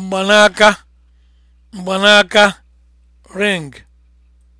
mgbanaka mgbanaka ring